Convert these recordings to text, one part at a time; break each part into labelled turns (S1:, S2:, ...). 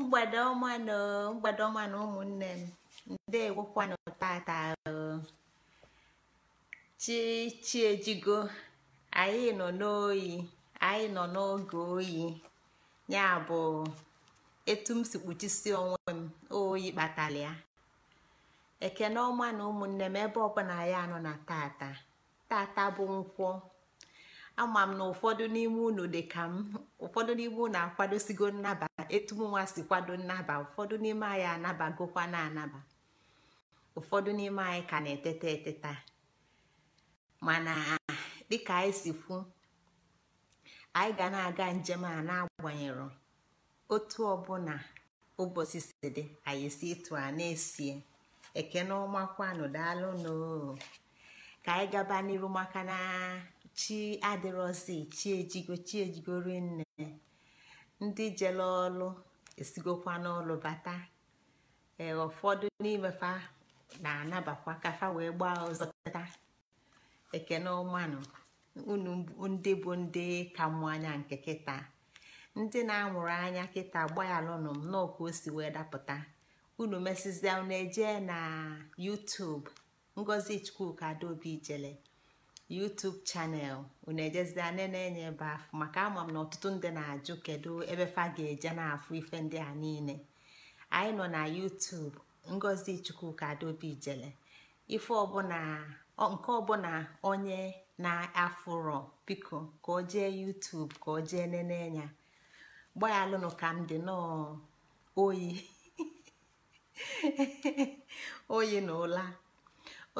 S1: mgbede ọma na mgbede ọma ụmụnne m ndewokwanụ tata chi chi ejigo anyị nọ n'oyi anyị nọ n'oge oyi ya bụ etu m si kpuchisi onwe m oyi kpatara ya ekene ọma na ụmụnne m ebe ọbụla ya nọ na tata tata bụ nkwọ ama m na ụfọdụ n'ime unu dị ka m ụfọdụ n'ime unu akwadosigo nnabata etumnwa si kwado nnaba ụfọdụ n'ime anyị anabagokwa na anaba ụfọdụ n'ime anyị ka na-eteta eteta mana dịka anyị si kwu anyị ga na-aga njem a na-agbanyero otu ọbụla ụbọchị si dị anyị si ịtụ a na-esie ekene ọma kwanụ daalụnụ ka anyị gaba n'iru maka na chi adịrọzi chi ejigo chi ejigo rinne ndị jele ọlụ esigokwa n'ọlụ bata ee ụfọdụ n'ime na-anabakwa ka wee gbaa ọzọ tata ekene ụmanụ unu ndị bụ ndị ka mụ anya nke kịta ndị na-amụrụ anya kịta gbayalụnụ m nọọ o si wee dapụta unu mesizia na eje na YouTube Ngozi Chukwuka Adaobi Ijele YouTube chanel unu ejezida nne na-enye ebe afụ maka ama m na ọtụtụ ndị na-ajụ kedu ebe fa ga-eje na-afụ ife ndị a niile anyị nọ na YouTube Ngozi Chukwuka Adaobi jele ife ọbụla nke ọbụla onye na-afụrọ biko ka o jee YouTube ka o jee nene ya ka m dị n'oyi oyi na ụla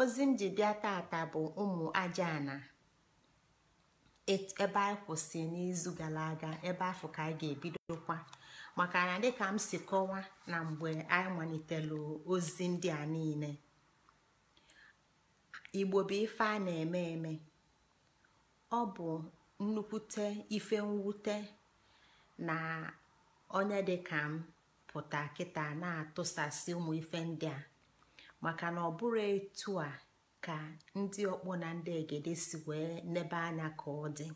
S1: ozi m ji bịa tata bụ ụmụ ajaana e-, ebe anyị kwụsị n'izu gara aga ebe afọ ka anyị ga-ebidokwa maka na dịka m si kọwa na mgbe anyị malitelu ozi ndị a niile igbo bụ ife a na-eme eme ọ bụ nnukwute ife mwute na onye dịka m pụta kịta na-atụsasị ụmụ ife ndị a maka na ọ bụrụ etu a ka ndị ọkpọ na ndị egede si wee nebe anya ka ọ dị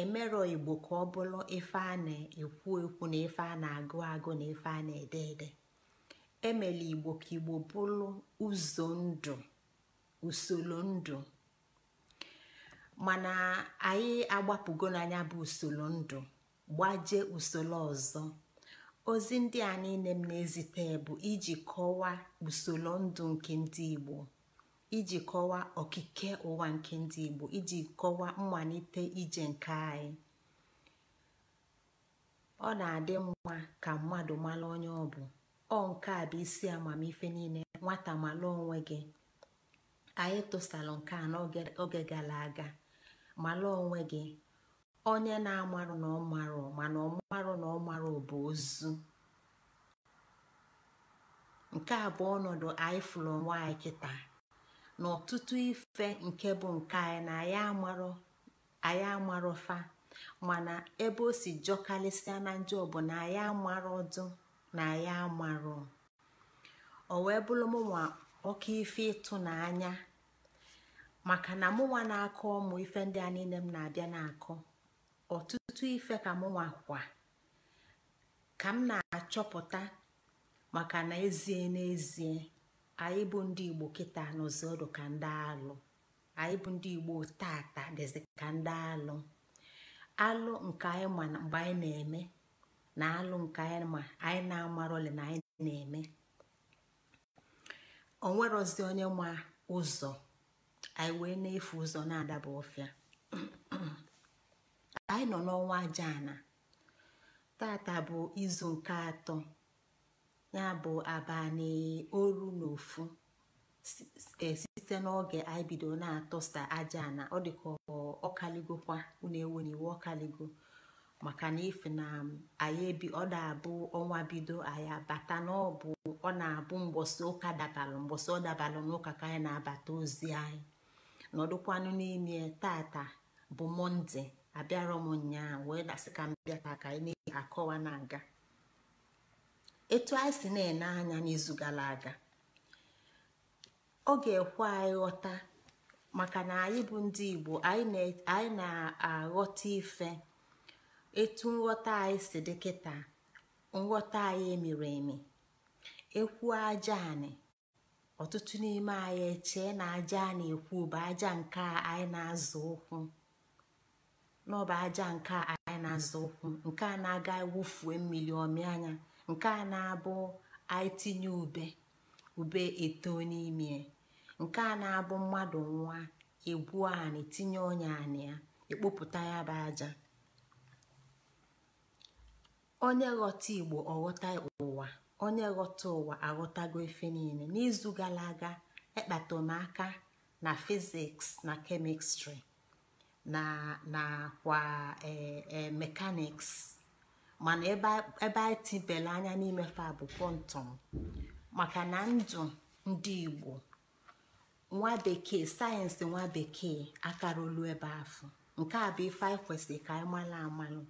S1: emerọ igbo ka ọ bụrụ ife a na-ekwu ekwu na ife a na-agụ agụ na ife a na-ede ede emela igbo ka igbo bụrụ ụzọ ndụ usoro ndụ mana anyị agbapụgo n'anya bụ usoro ndụ gbajee usoro ọzọ ozi ndị a niile m na-ezite bụ iji kọwaa usoro ndụ nke ndị igbo iji kọwaa okike ụwa nke ndị igbo iji kọwaa mmalite ije nke anyị ọ na-adị mma ka mmadụ mara onye ọ bụ ọ nke a bụ isi amamife niile nwata mara onwe gị anyị tụsara nke a n'oge gara aga mara onwe gị onye na-amarụ na ọ marụ mana ọ marụ na ọ marụ bụ ozu nke a bụ ọnọdụ anyị fụrụ onwe anyị kịta na ọtụtụ ife nke bụ nke anyị na anyị amarọ fa mana ebe o si jọkalịsịa na njọ bụ na anyị amarọ ọdụ na anyị amarọ o wee bụrụ mụnwa oke ife ịtụnanya maka na mụnwa na-akọ ụmụ ife ndị a niile m na-abịa na-akọ ọtụtụ ife ka mụnwa kwa ka m na-achọpụta maka na ezie n'ezie anyị bụ ndị igbo kịta n'ụzọ ọdụ ka ndị alụ anyị bụ ndị igbo tata dịzị ka ndị alụ alụ nke anyị ma mgbe anyị na-eme na alụ nke anyị ma anyị na-amarọli na anyị na-eme onwerozi onye ma ụzọ anyị wee na-efu ụzọ na-adaba ọfịa anyị nọ n'ọnwa ajaana tata bụ izu nke atọ ya bụ abalị oru na ofu e, site n'oge anyị bido na-atụsa ajaana ọ dịka ọkaligokwa unu eweniwe ọkaligo maka na ife na anyị ebi ọ na-abụ ọnwa bido anyị abata na ọ bụ ọ na-abụ mgbọsị ụka dabalụ mgbọsị ọ dabalụ n'ụka ka anyị na-abata ozi anyị nọdụkwanụ n'ime tata bụ Mọnde. abịara m nyaa wee dasị ka m ka anyị na-akọwa na-aga etu anyị si na-ene anya n'izu gara aga ọ ga-ekwe anyị ghọta maka na anyị bụ ndị Igbo anyị na-aghọta ife etu nghọta anyị si dị nghọta anyị emere eme ekwu aja anị ọtụtụ n'ime anyị echee na aja a na-ekwu bụ aja nke anyị na-azụ ụkwụ n'ọba aja nke anyị na-asa ụkwụ nke a na-aga wụfue mmiri ọmị anya nke a na-abụ anyị ube ube eto n'ime nke a na-abụ mmadụ nwa egwu anị tinye ọnya anị ya ekpopụta ya bụ aja onye ghọta igbo ọghọta ụwa onye ghọta ụwa aghọtago efe niile n'izu gara aga ekpata m aka na fiziks na kemistri na nakwa e, e, mekaniks mana ebe anyị tibela anya n'ime fa bụ kwọntọm maka na ndụ ndị igbo nwa bekee sayensị nwa bekee akarolu ebe afọ nke a bụ ife anyị ka anyị amalụ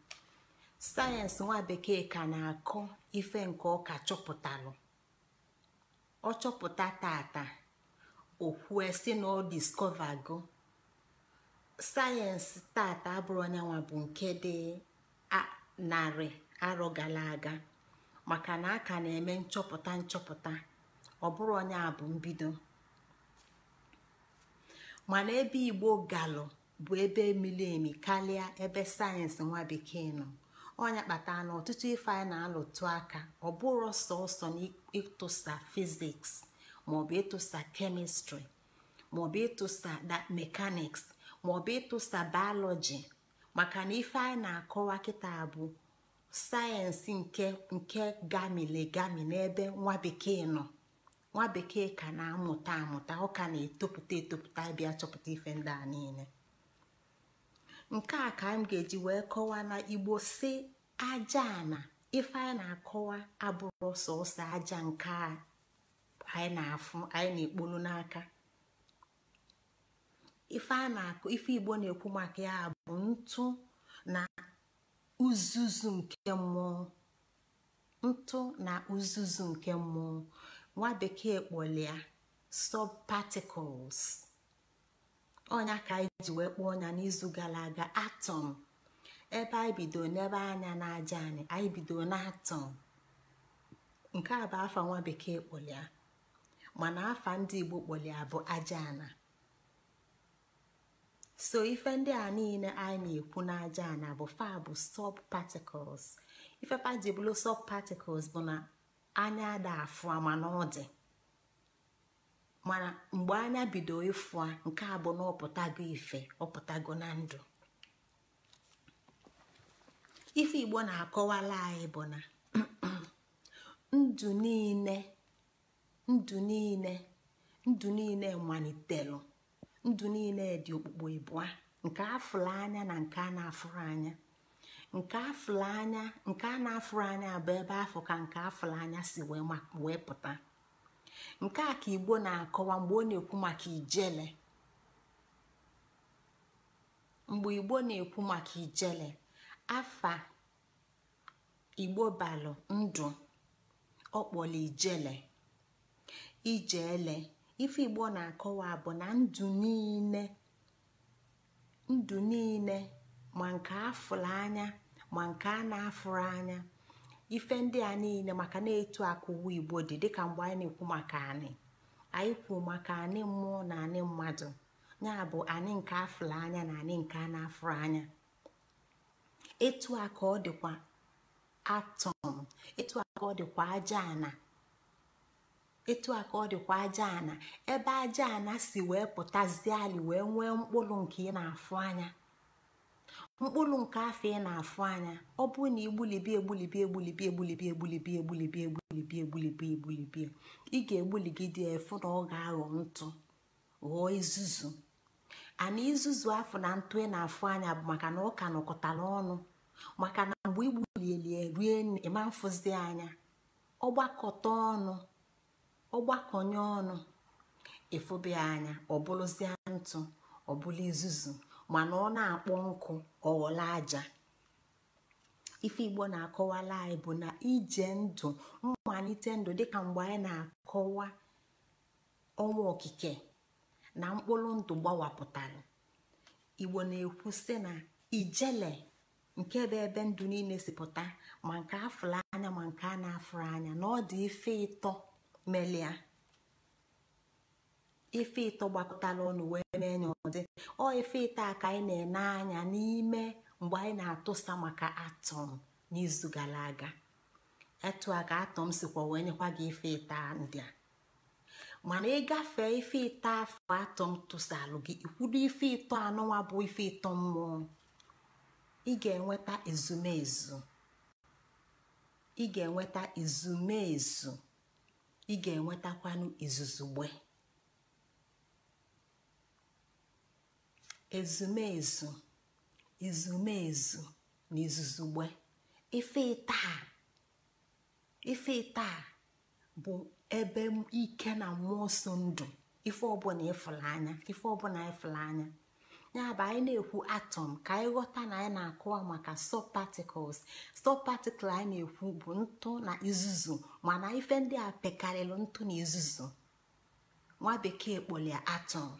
S1: sayensị nwa bekee ka na-akọ ife nke ọka ka chọpụtalụ ọ chọpụta tata o si na ọ diskọvago sayensị tata abụrụ nwa bụ nke dị narị arọ gara aga maka na a ka na-eme nchọpụta nchọpụta ọ bụrụ onye a bụ mbido mana ebe igbo galụ bụ ebe miri emi karịa ebe sayensị nwa bekee nọ ọnya kpatara na ọtụtụ ife anyị na-alụtụ aka ọ bụrụ sọsọ ịtụsa fiziks maọbụ ịtụsa kemistri maọbụ ịtụsa mekaniks maọbụ ịtụsa bayọlọji maka na ife anyị na-akọwa kịta bụ sayensị nke nke gamili-gami n'ebe nwa bekee nọ nwa bekee ka na-amụta amụta ọ ka na-etopụta etopụta bịa chọpụta ife ndị a niile nke a ka m ga-eji wee kọwaa na igbo si aja na ife anyị na-akọwa abụrụ sọsọ aja nke anyị na-afụ anyị na-ekpolu n'aka ife a na-akụ ife igbo na-ekwu maka ya bụ ntụ na uzuzu nke mmụọ ntụ na uzuzu nke mmụọ nwa bekee kpọlịa subparticles ọnya ka anyị ji wee kpọọ ọnya n'izu gara aga atọm ebe anyị bido n'ebe anya na-aja anyị anyị bido n'atọm nke a bụ afa nwa bekee kpọlịa mana afa ndị igbo kpolia bụ aja ana so ife ndị a niile anyị na-ekwu n'aja na bụ fa bụ sub ife faji sọp sub bụ na anya ada afụ mana ọ dị mana mgbe anya bido ịfụ nke a bụ na ọpụtago ife ọpụtago na ndụ ife igbo na-akọwala anyị bụ na ndụ niile ndụ niile ndụ niile malitelu ndụ niile dị okpukpo ịbụa nke afụrụ anya na nke a na-afụrụ anya nke afụrụ anya nke a na-afụrụ anya bụ ebe afọ ka nke afụrụ anya si wee pụta nke a ka igbo na-akọwa mgbe ọ na-ekwu maka ijele mgbe igbo na-ekwu maka ijele afa igbo balụ ndụ ọ kpọrọ ijele ife igbo na-akọwa bụ na ndụ niile ndụ niile ma nke afụrụ anya ma nke a na-afụrụ anya ife ndị a niile maka na-etu akụwa igbo dị dịka mgbe anyị na-ekwu maka anyị anyị kwuo maka anị mmụọ na anị mmadụ ya bụ anyị nke afụrụ anya na anị nke a na-afụrụ anya etu a ka ọ dịkwa atọm etu a ka ọ dịkwa aja ana etu a ka ọ dịkwa aja ana ebe aja ana si wee pụtazie ali wee nwee mkpụrụ nke ị na-afụ anya mkpụrụ nke afọ ị na-afụ anya ọ bụrụ na igbulibi egbulibi egbulibi egbulibi egbulibi egbulibi egbulibi egbulibi egbulibi ị ga-egbuligide efu na ọ ga-aghọ ntụ ghọọ izuzu ana izuzu afọ na ntụ ị na-afụ anya bụ maka na ọ nọkọtara ọnụ maka na mgbe igbulieli rue ịma mfụzi anya ọgbakọta ọnụ ọgbakọnye ọnụ ịfụbịa anya ọbụlụzie ntụ ọbụla izuzu mana ọ na-akpọ nkụ ọghọla aja ife igbo na-akọwala anyị bụ na ije ndụ mmalite ndụ dịka mgbe anyị na-akọwa ọnwa okike na mkpụrụ ndụ gbawapụtara igbo na-ekwu sị na ijele nke bụ ebe ndụ niile si pụta ma nke afụrụ anya ma nke a na-afụrụ anya na ọ dị ife ịtọ melia ife ito gbakọtara ọnụ wee mee nya ọdị ọ ife ịta ka anyị na-ene anya n'ime mgbe anyị na-atụsa maka atọm n'izu gara aga etu a ka atọm sikwa wee nyekwa gị ife ịta ndị a mana ịgafe ife ịta afọ atọm tụsalụ gị ikwudo ife ịtọ anụnwa bụ ife ịtọ mmụọ ị ga-enweta ezumezu ị ga-enweta ezumezu ị ga-enwetakwanụ izuzugbe ezumezu izumezu na izuzugbe ife taa ife taa bụ ebe ike na mmụọ ndụ ife ọbụla ịfụla anya ife ọbụla ịfụla anya ya bụ anyị na-ekwu atọm ka anyị ghọta na anyị na-akụwa maka sub particles sub particle anyị na-ekwu bụ ntụ na izuzu mana ife ndị a pekarịrị ntụ na izuzu nwa bekee kpọlia atọm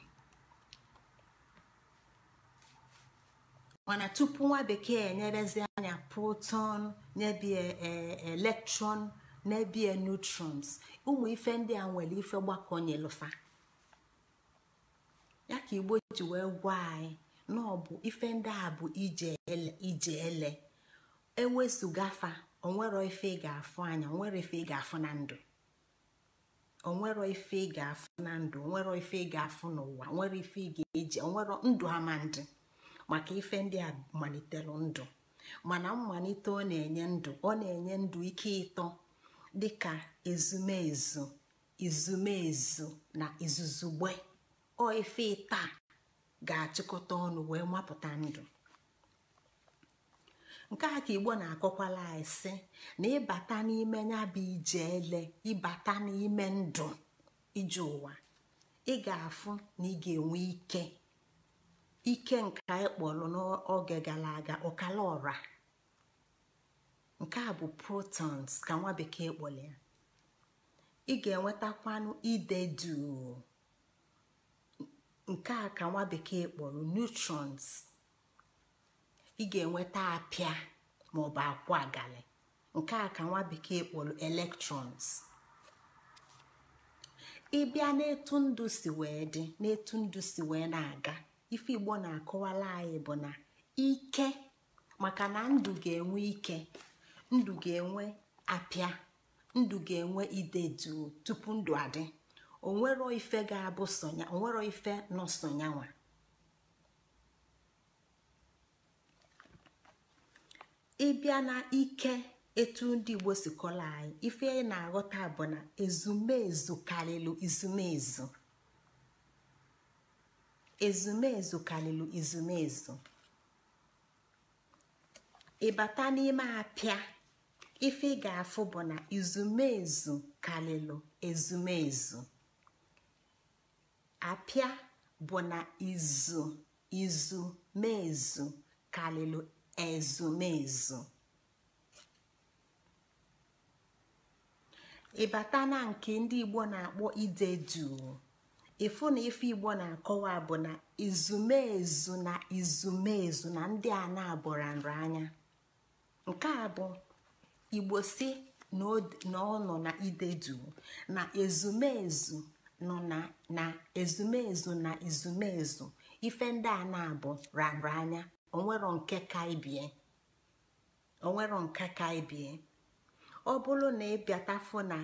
S1: mana tupu nwa bekee enyerezi anya proton nyebie e, electron nyebie neutrons ụmụ ife ndị a nwere ife gbakọnyelufa ya ka igbo ji wee gwa anyị na ọ bụ ife ndị a bụ ije ele ewesụgafa e onwero ife ị ga-afụ anya onwere ife ị ga-afụ na ndụ onwero ife ị ga-afụ na ndụ onwero ife ị ga-afụ n'ụwa onwere ife ị ga-eji onwero ndụ amandị maka ife ndị a ndụ mana mmalite ọ na-enye ndụ ọ na-enye ndụ ike ịtọ dịka ezumezu izumezu na izuzugbe ọ efe taa ga-achịkọta ọnụ wee mapụta ndụ nke a ka igbo na-akọkwala anyị sị na ịbata n'ime ya bụ ije ele ịbata n'ime ndụ ije ụwa ị ga-afụ na ị ga-enwe ike ike nke anyị kpọrọ n'oge gara aga ọkala ọra nke a bụ protons ka nwa bekee kpọrọ ya ị ga-enwetakwanụ ide duu nke a ka nwa bekee kpọrọ neutrons ị ga-enweta apịa maọbụ akwụ agalị nke a ka nwa bekee kpọrọ electrons ịbịa n'etu ndụ si wee dị n'etu ndụ si wee na-aga ife igbo na-akọwala anyị bụ na ike maka na ndụ ga-enwe ike ndụ ga-enwe apịa ndụ ga-enwe ide tupu ndụ adị onwero ife ga-abụ sonya onwero ife nọ sonyanwa ịbịa na ike etu ndị igbo si kọrọ anyị ife ị na-aghọta bụ na ezumezu karịrị izumezu ezumezu karịrị izumezu ịbata n'ime apịa ife ị ga-afụ bụ na izumezu karịrị ezumezu apịa bụ na izu izu mezu karịrị ezumezu ịbata na nke ndị igbo na-akpọ ide duu ịfụ na ife igbo na-akọwa bụ na izumezu na izumezu na ndị a na-abụra anya nke a bụ igbo si na ọ nọ na ide duu na ezumezu nọ na ezumezu na ezumezu ife ndị a na-abụ rara anya onwero nke ka ibie onwero nke ka ibie ọ bụrụ na ịbịatafụ na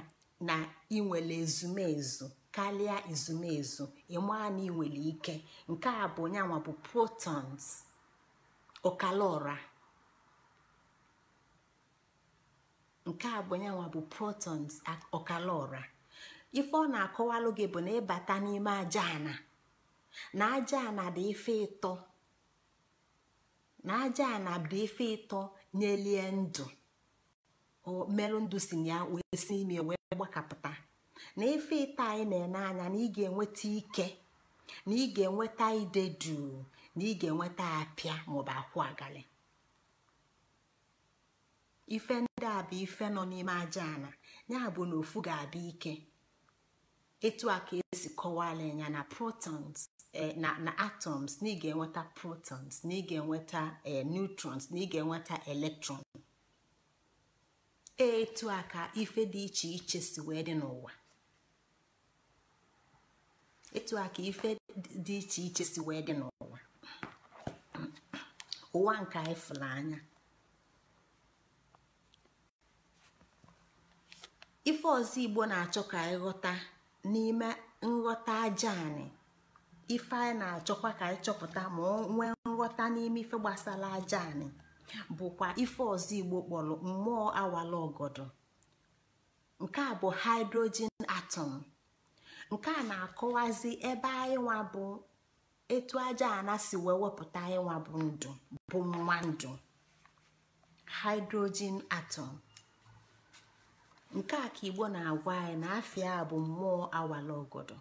S1: na inwele ezumezu karịa ezumezu ịmaa na inwere ike nke a bụ nyanwa bụ protons ọkala ọra nke a bụ nyanwa bụ protons ọkala ọra ife ọ na-akọwalụ gị bụ na ịbata n'ime aja ana na aja ana dị ife ịtọ na aja ana dị ife ịtọ nyelie ndụ merụ ndụ si ya wee si ime wee gbakapụta na ife ịtọ anyị na-ene anya na ị ga-enweta ike na ị ga-enweta ide duu na ị ga-enweta apịa maọbụ akwụ agali ife ndị a bụ ife nọ n'ime aja ana ya bụ na ofu ga-abịa ike etu a ka esi kọwala anya na protons eh, na atoms na ga-enweta protons na ị ga-enweta eh, neutrons na ị ga-enweta electrons etu a ka ife dị iche iche si wee dị n'ụwa etu a ka ife dị iche iche si wee dị n'ụwa ụwa nke anyị fụrụ anya ife ọzọ igbo na-achọ ka anyị ghọta n'ime nghọta aja ife anyị na-achọkwa ka anyị chọpụta ma nwee nghọta n'ime ife gbasara aja bụkwa ife ọzọ igbo kpọrọ mmụọ awala ọgọdọ nke a bụ hydrogen atom nke a na-akọwazi ebe anyị bụ etu aja ana si wee wepụta anyị nwa bụ ndụ bụ ndụ hydrogen atom nke a ka igbo na-agwa anyị na afịa bụ mmụọ awala ogodo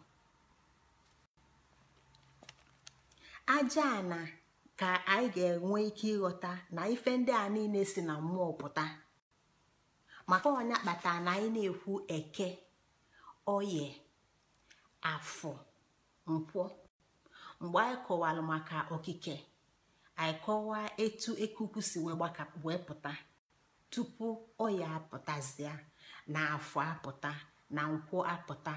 S1: aja na ka anyị ga-enwe ike ịghọta na ife ndị a niile si na mmụọ pụta maka onye kpatara na anyị na-ekwu eke oye afọ nkwọ mgbe anyị kọwara maka okike anyị kọwaa etu ekuku si wee pụta tupu oya apụtazịa na afọ apụta na nkwụ apụta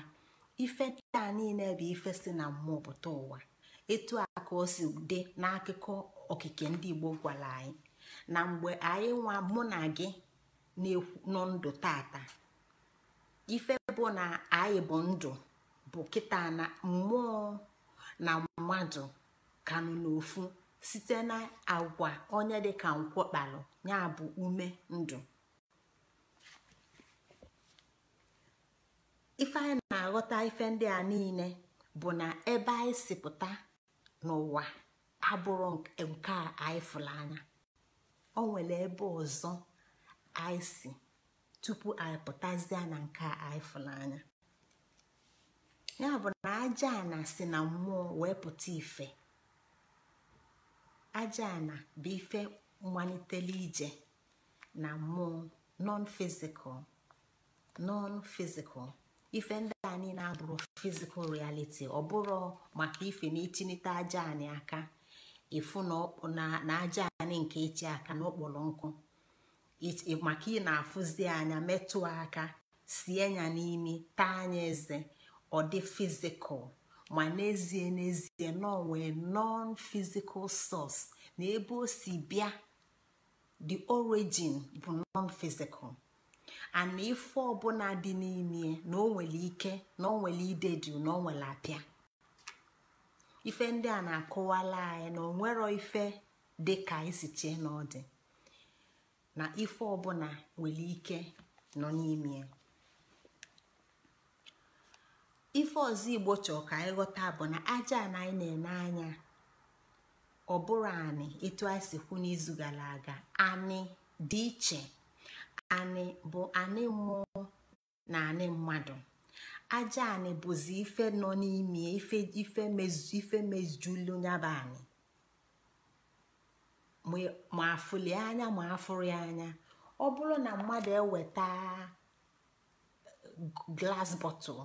S1: ife ndị niile bụ ife si na mmụọ pụta ụwa etu a ka o si dị n'akụkọ okike ndị Igbo gwara anyị na mgbe anyị nwa mụ na gị nọ ndụ tata ife bụ na anyị bụ ndụ bụ kịta na mmụọ na mmadụ kanụ n'ofu site na agwa onye ka nkwọ kpalụ ya bụ ume ndụ ife anyị na-aghọta ife ndị a niile bụ na ebe anyị si pụta n'ụwa abụrụ nke a anyị anya o nwere ebe ọzọ anyị si tupu anyị pụtazie na nke a anyị fụrụ anya ya bụ na aja na si na mmụọ wee pụta ife aja na bụ ife malitele ije na mmụọ non fizikal non fizikal. ife ndị anyị na abụrụ fizikal realiti ọ bụrụ maka ife na ichinite aja anyị aka ịfụ na aja anyị nke echi aka na nkụ maka ị na-afụzi anya metụ aka sie ya n'imi taa anya eze ọ dị fizikal ma n'ezie n'ezie nọ nwee non physical source na ebe o si bịa the origin bụ non physical ana ife ọbụla dị n'ime na o nwere ike na o nwere ide jụụ na o nwere apịa ife ndị a na akụwala anyị na onwero ife dị ka isi na ọ dị na ife ọbụla nwere ike nọ n'ime ife ọzọ igbo chọọ ka anyị ghọta bụ na aja na anyị na-ene anya ọ bụrụ anị etu anyị si kwu n'izu gara aga anị dị iche anị bụ anị mụ na anị mmadụ aja anị bụzi ife nọ n'ime ife mezulu nyaba anị ma afụlie anya ma afụrụ ya anya ọ bụrụ na mmadụ eweta glas bọtụl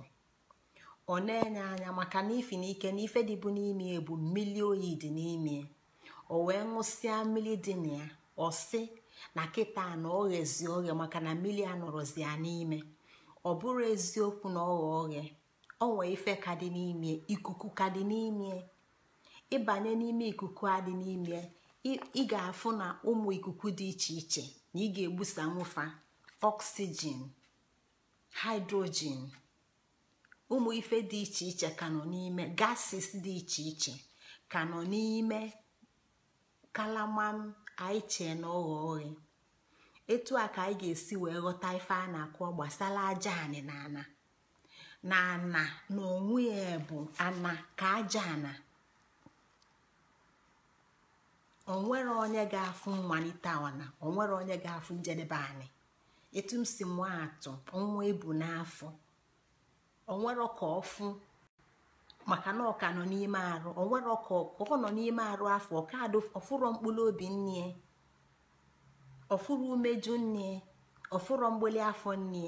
S1: ọ na-enye anya maka na ifi n'ike na ife dịbụ n'ime bụ mmili oyi dị n'ime o wee ṅụsịa mmiri dị na ya ọ sị na kịta na ọghọ ezi maka na mmiri a nọrọzi ya n'ime ọ bụrụ eziokwu na ọghọ ọghịa ọnwe ife ka dị n'ime ikuku ka dị n'ime ịbanye n'ime ikuku a dị n'ime ị ga-afụ na ụmụ ikuku dị iche iche na ị ga-egbusa nwụfa ọksijin hydrogen ụmụ ife dị iche iche ka nọ n'ime gases dị iche iche ka nọ n'ime kalama anyị chee na ọghọ oghe etu a ka anyị ga-esi wee ghọta ife a na akụ gbasara aja anị na ana na ana na onwe ya bụ ana ka aja ana onwere onye ga-afụ mmalite ana onwere onye ga-afụ njedebe anyị. etu m si mụọ atụ nwa ebu n'afọ onwere ka ọfụ maka na ọka nọ n'ime arụ o nwere ọka ọ nọ n'ime arụ afọ ọka ọfụrọ mkpụrụ obi nne ọfụrụ umeju nne ọfụrọ mgbeli afọ nne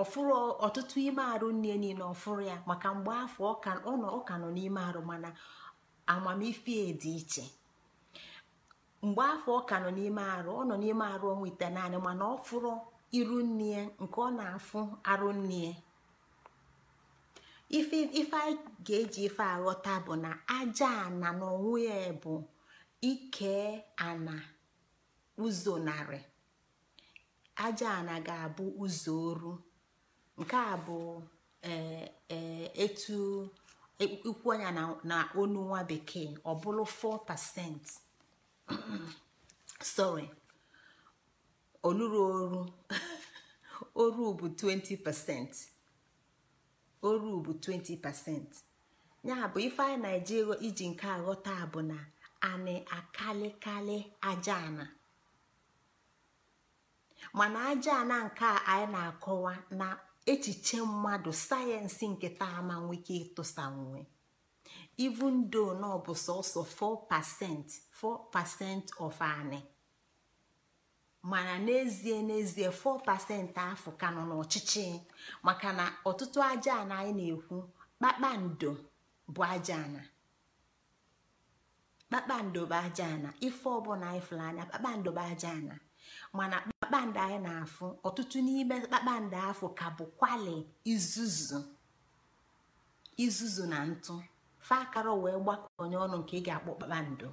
S1: ọfụrụ ọtụtụ ime arụ nne niile ọfụrụ ya maka mgbe afọ ọka nọ n'ime arụ mana amamife dị iche mgbe afọ ọka nọ n'ime arụ ọ nọ n'ime arụ ọnwa ite naanị mana ọfụrụ iru nne nke ọ na-afụ arụ nne ife a ga-eji ife aghọta bụ na aja ana n'onwe ya bụ ike ana ụzọ narị aja ana ga-abụ ụzọ oru nke a bụ e, e, etu ikwu anya na onu nwa bekee ọ bụrụ 4% sorry oluru oru oru bụ 20% oru bụ 20% ya bụ ife anyị na-eji iji nke aghọta bụ na anị akalịkalị aja ana mana aja ana nke a anyị na-akọwa na echiche mmadụ sayensị nke taa ma nwee ike ịtụsa nwe even though na ọ bụ sọọsọ 4% 4% of anị. mana n'ezie n'ezie 4% afọ ka nọ n'ọchịchị maka na ọtụtụ aja anyị na-ekwu kpakpando bụ aja na kpakpando bụ aja ife ọbụla anyị fụrụ anya kpakpando bụ aja ana mana kpakpando anyị na-afụ ọtụtụ n'ime kpakpando afọ ka bụ kwali izuzu izuzu na ntụ fa akara wee gbakọ ọnụ nke ị ga-akpọ kpakpando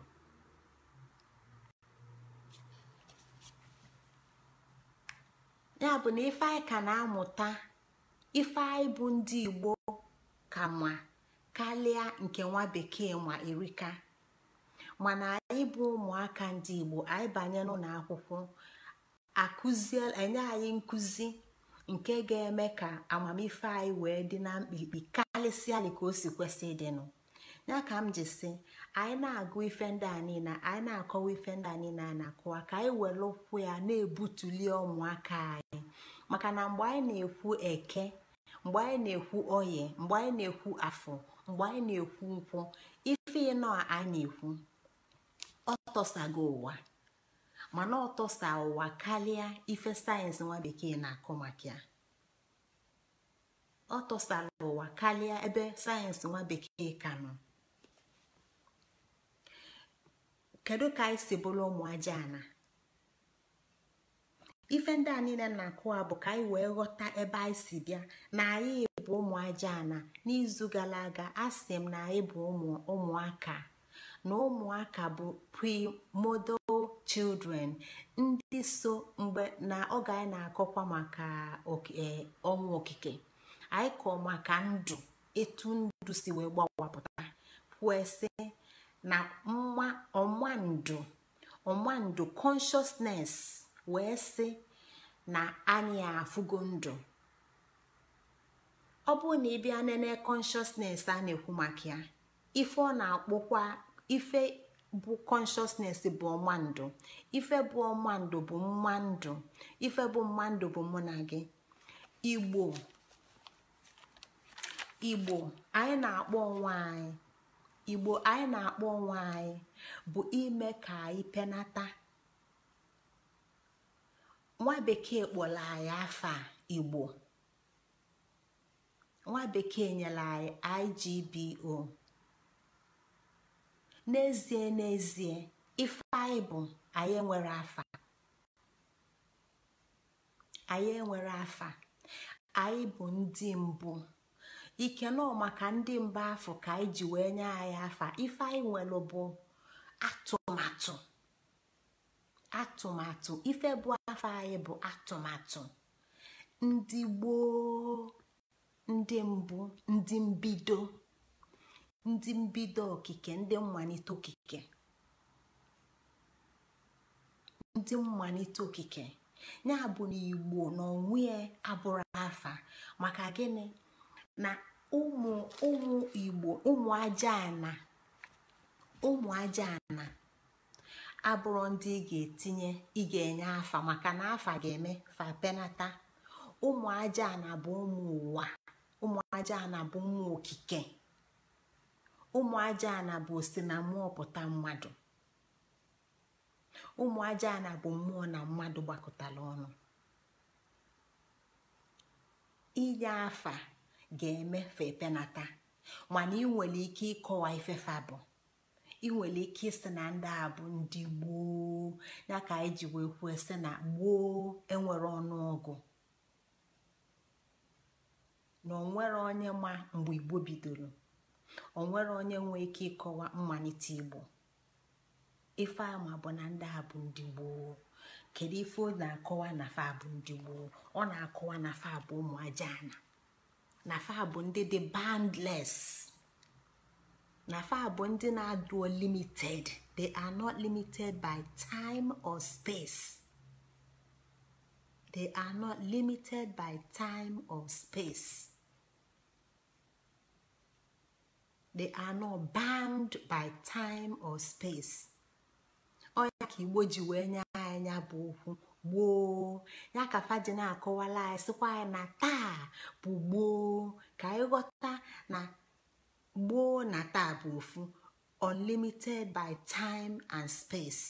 S1: ya bụ na ife anyị ka na-amụta ife anyị bụ ndị igbo ka ma karịa nke nwa bekee ma erika mana anyị bụ ụmụaka ndị igbo anyị banye n'ụlọ akwụkwọ enye anyị nkụzi nke ga-eme ka amamife anyị wee dị na mkpirikpi karịsịa dị ka o si kwesị ịdịnụ ya ka m ji si anyị na-agụ ife ndị a niile anyị na-akọwa ife ndị a niile a na-akọwa ka anyị were ụkwụ ya na ebutuli ụmụaka anyị maka na mgbe anyị na-ekwu eke mgbe anyị na-ekwu oye mgbe anyị na-ekwu afọ mgbe anyị na-ekwu nkwụ ife ịnọ a na-ekwu ọtọsago ụwa mana ọtọsa ụwa karịa ife sayensị nwa bekee na-akọ maka ya ọ tọsara ụwa karịa ebe sayensị nwa bekee ka nọ kedu ka anyị si bụrụ ụmụ ajaana ife ndị a niile na-akụ a bụ ka anyị wee ghọta ebe anyị si bịa na anyị bụ ụmụ ajaana n'izu gara aga a sị m na anyị bụ ụmụaka na ụmụaka bụ primodo children ndị so mgbe na oge anyị na-akọkwa maka e, ọnwụ okike anyị kọọ maka ndụ etu ndụ si wee gbawapụta kwesị na ọmandụ ọmandu ọmandu wee sị na anyị afụgo ndụ ọ bụrụ na ị bịa nene konshọsnes a na-ekwu maka ya ife ọ na-akpọkwa ife bụ consciousness bụ ọmandu ife bụ ọmandu bụ mmandụ ife bụ mmandụ bụ mụ na gị igbo igbo anyị na-akpọ onwe anyị igbo anyị na-akpọ onwe anyị bụ ime ka anyị penata nwa bekee kpọrọ anyị afa igbo nwa bekee nyere anyị igbo n'ezie n'ezie ife anyị bụ anyị enwere afa anyị enwere afa anyị bụ ndị mbụ ikene maka ndị mba afọ ka anyị ji wee nye anyị afa ife anyị nwere bụ atụmatụ atụmatụ ife bụ afọ anyị bụ atụmatụ ndị gboo ndị mbụ ndị mbido ndị mbido okike ndị mmalite okike ndị mmalite okike ya bụ na igbo na onwe abụrụ afa maka gịnị na ụmụ ụmụ igbo ụmụ ajaana ụmụ ajaana abụrụ ndị ị ga-etinye ị ga-enye afa maka na afa ga-eme fa penata ụmụ ajaana bụ ụmụ ụwa ụmụ ajaana bụ ụmụ okike ụmụ ajaana bụ osi na mmụọ pụta mmadụ ụmụ ajaana bụ mmụọ na mmadụ gbakọtara ọnụ inye afa ga eme na taa mana ị nwere ike ịkọwa ifefe bụ ị nwere ike ịsị na ndị a bụ ndị gboo ya ka anyị ji wee kwuo sị na gboo enwere ọgụ. na onwere onye ma mgbe igbo bidoro onwere onye nwee ike ịkọwa mmalite igbo ife ama bụ na ndị a bụ ndị gboo kedu ife ọ na-akọwa na fa ndị gboo ọ na-akọwa na fa bụ ụmụ na fa bụ ndị dị bandles na fa bụ ndị na-adụ limited they are not limited by time or space they are not limited by time or space they are not bound by time or space ọ ya ka igbo ji wee nye anya bụ okwu gboo ya ka faji na-akọwala anyị sịkwa anyị na taa bụ gboo ka anyị ghọta na gboo na taa bụ ofu unlimited by time and space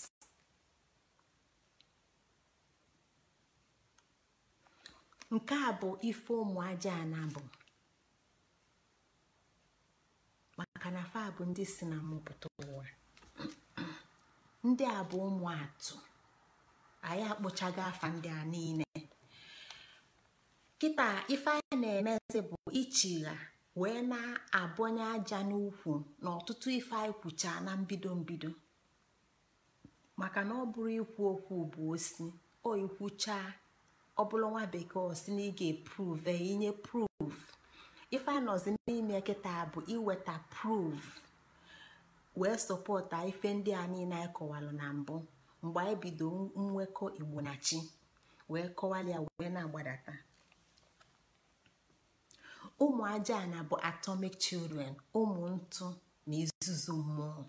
S1: nke a bụ ife ụmụ aja anabụ maka na fa bụ ndị si na mụpụta ụwa ndị a bụ ụmụ atụ. anyị akpụchago afa ndị a niile kịta ife anyị na-emezi bụ ichigha wee na abụnye aja n'ukwu na ọtụtụ ife anyị kwucha na mbido mbido maka na ọ bụrụ ikwu okwu bụ osi o ọ bụrụ nwa bekee osi na ị ga-epruve inye proof ife anọzi n'ime kịta bụ iweta proof wee sọpọta ife ndị a niile anyị kọwalụ na mbụ mgbe anyị bido nwekọ igbo na chi wee kọwalịa wee na-agbadata ụmụ aja na bụ atomic children ụmụ ntụ na izuzu mmụọ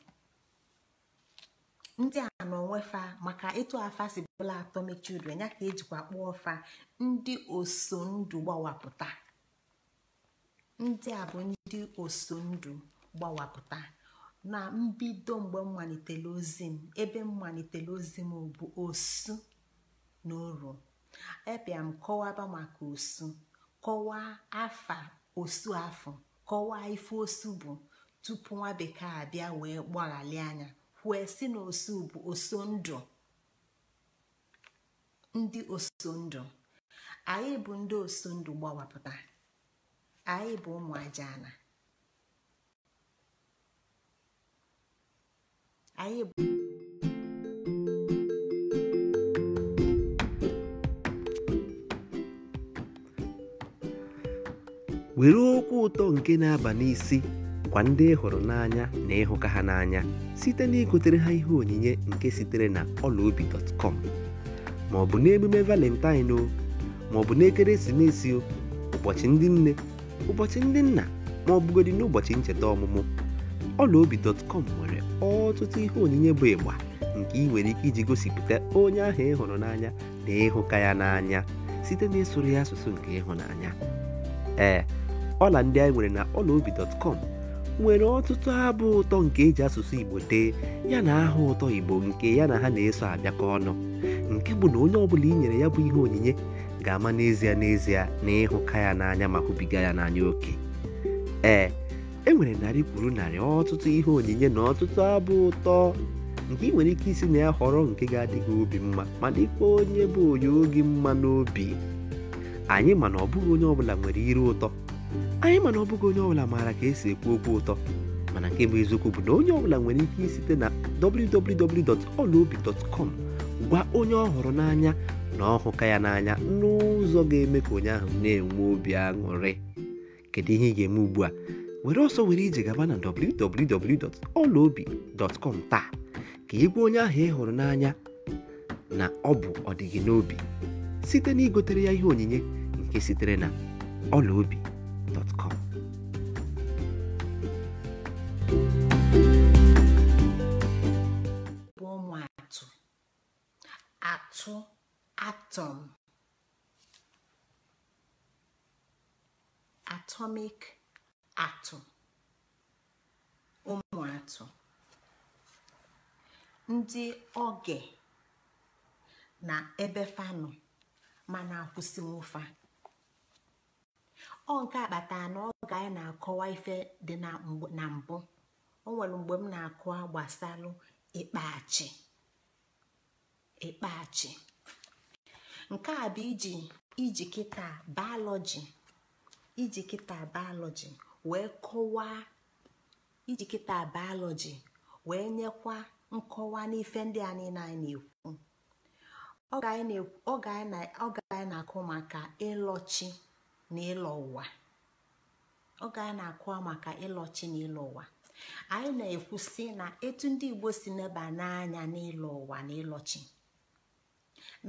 S1: ndị a nọ nwefa maka ịtụ afa si bụla atomic children ya ka ejikwa kpụọ fa ndị oso ndụ gbawapụta ndị a bụ ndị oso ndụ gbawapụta na mbido mgbe m ozi m ebe m ozi m bụ osu na oru ebịa m kọwaba maka osu kọwaa afa osu afọ kọwaa ife osu bụ tupu nwa bekee abịa wee gbaghali anya wee si na osu bụ oso ndụ ndị oso ndụ anyị bụ ndị oso ndụ gbawapụta anyị bụ anyị bụ
S2: were okwu ụtọ nke na-aba n'isi kwa ndị ịhụrụ hụrụ n'anya na ịhụka ha n'anya site na igotere ha ihe onyinye nke sitere na ọlaobi.com ma ọ bụ n'emume valentine o ma ọ bụ n'ekeresimesi o ụbọchị ndị nne ụbọchị ndị nna ma ọ n'ụbọchị ncheta ọmụmụ ọlaobi.com nwere ọtụtụ ihe onyinye bụ ịgba nke ị nwere ike iji gosipụta onye ahụ ị hụrụ n'anya na ịhụka ya n'anya site na ịsụrụ ya asụsụ nke ịhụnanya ee ọla ndị anyị nwere na ọlaobi.com nwere ọtụtụ abụ ụtọ nke eji asụsụ igbo dee ya na aha ụtọ igbo nke ya na ha na-eso abịakọ ọnụ nke bụ na onye ọbụla i nyere ya bụ ihe onyinye ga-ama n'ezie n'ezie na ịhụka ya n'anya ma hụbiga ya n'anya oke ee e nwere narị kwuru narị ọtụtụ ihe onyinye na ọtụtụ abụ ụtọ nke ị nwere ike isi na ya họrọ nke ga-adịghị obi mma ma dịkwa onye bụ onye oge mma n'obi anyị mana ọbụghị onye ọbụla nwere iru ụtọ anyị mana ọbụghị onye ọbụla maara ka esi ekwu okwu ụtọ mana nke bụ eziokwu bụ na onye ọbụla nwere ike isite na www.olaobi.com gwa onye ọ n'anya na ọhụka ya n'anya n'ụzọ ga-eme ka onye ahụ na-enwe obi aṅụrị kedu ihe ị ga-eme ugbu a were ọsọ were ije gaba na www.olaobi.com taa ka egwu onye ahụ ị hụrụ n'anya na ọ bụ ọdịgị n'obi site na igotere ya ihe onyinye nke sitere na ọla
S1: atụ atọm atọmik. atụ ụmụ atụ ndị oge na ebe fanụ mana akwụsị fa ọ nke akpata na ọ ga anyị na-akọwa ife dị na mbụ o nwere mgbe m na-akọwa gbasalụ ịkpachi ịkpachi nke a bụ iji iji kịta biology wee kọwaa iji kịta bayọlọji wee nyekwa nkọwa n'ife ndị a anyị na-ekwu oge anyị na-akụ maka ịlọchi na ụwa anyị na-akụ maka ịlọchi na ịlọ ụwa anyị na-ekwu sị na etu ndị Igbo si neba n'anya n'ịlọ ụwa na ịlọchi